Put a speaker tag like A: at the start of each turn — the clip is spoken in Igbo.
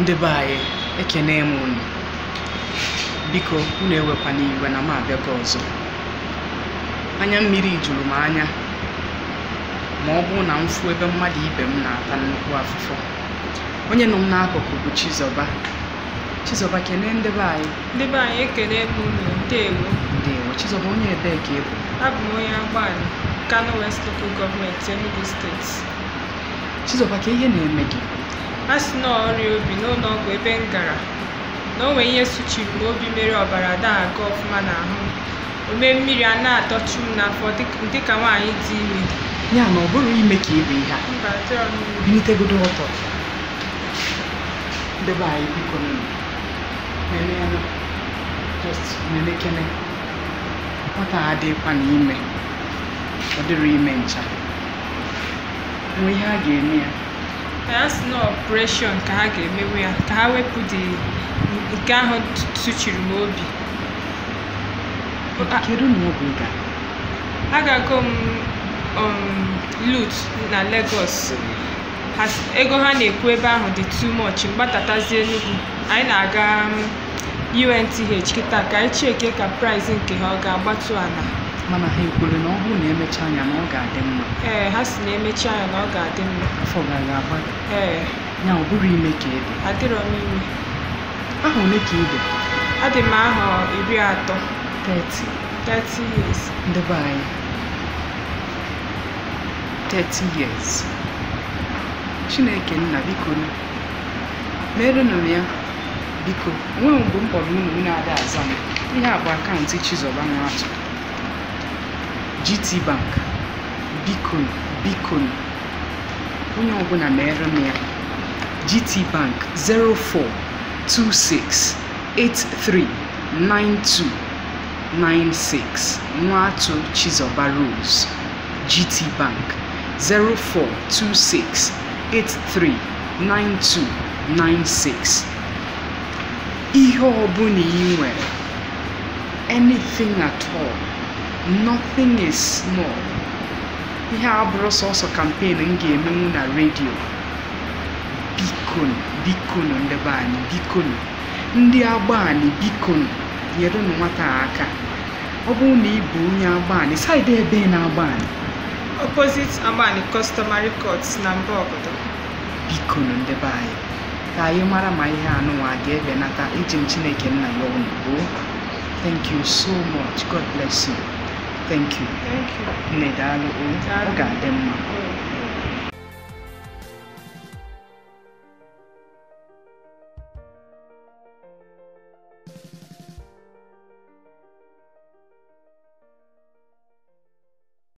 A: ndị be anyị ekene m unu biko unu ewekwa n'iwe na m abịago ọzọ anya mmiri juru m anya ma ọ bụrụ na m fụ ebe mmadụ ibe m na-ata nnukwu afụfụ onye nọ m n'akụkụ bụ Chizọba Chizọba kene ndị be anyị
B: ndị be anyị ekene m unu ndewo ndewo Chizọba onye ebee ka ịbụ abụ m onye Agbani Kano West Local Government Enugu Steeti.
A: Chizọba ka ihe na-eme gị
B: a sị na ọ ọrịa obi n'ụlọọgwụ ebe m gara na o nwee ihe sụchiri m obi mere ọbara na ọfụma n'ahụ m ome mmiri a na-atọchi m n'afọ ka nwaanyị dị ime
A: ya na ọ bụrụ ime ka ebe ihe
B: a
A: bilitegodo ọtọ ndebe anyị biko nene just nene adịghịkwa na ọ dịrị ime ncha nwee ihe a ga-eme ya
B: ka ha na ọpụreshọn ka ha ga emewe ya ka ha wepụ dị nke ahụ sụchiri m obi ga-agụ m um, lut na Lagos ego ha na-ekwu ebe ahụ dị too much mgbatazi Enugu anyị na-aga um, UNTH kịta ka anyị eke ka praịsị nke ha ọ ga-agbatu ala
A: mana ha ekwere na ọ bụrụ na emechaa anya na ọ ga-adị mma
B: ee ha si na emecha anya na ọ ga-adị mma
A: afọ gara agba
B: ee ya ọ bụrụ ime ka ebe adịrọ m ime
A: aha ole ka ị
B: adị m ahọ iri atọ 30 30 years
A: ndị be anyị 30 years chineke nna biko merenụ ya Biko, o nweghi mgbe m kpọrọ unu na ada aza m. Ihe a bụ akaụntụ Chizọba Nwatu GTBank. Bikonu, onye ọbụla mere m ya. GTBank 0426839296 Nwatu Chizọba Rose GTBank 0426839296 ihe ọbụla ị nwere anything at all nothing is small ihe abụrụ sọsọ kampen m ga-emenwu na redio bikonu bikonu ndị be anyị bikonu ndị agbaanị bikonu nyerenu nwata aka ọ bụrụ na ị bụ onye agbaanị saịdị ebe na-agbaanị
B: opposite agbani customary court na mba obodo
A: bikonu ndị anyị ka anyị mara ma ihe anụnwa ga-ebenata iji m Chineke nna ya unu kwuo thank you so much God bless you thank you nne daalụ ọ ga-adị mma